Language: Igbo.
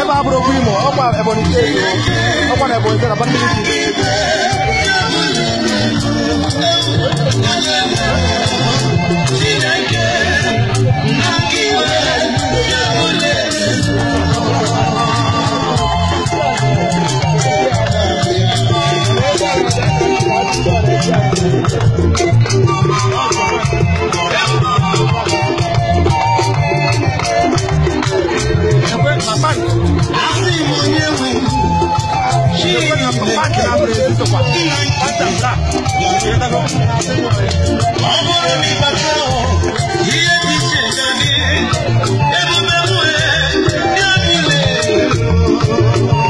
ebe abụrụ okwu imo ọkwa ebonyi steeti ọkwa na ebonyi steeti abata Thank you. comparte la presencia para ti, hasta acá. Amor mi patrón, y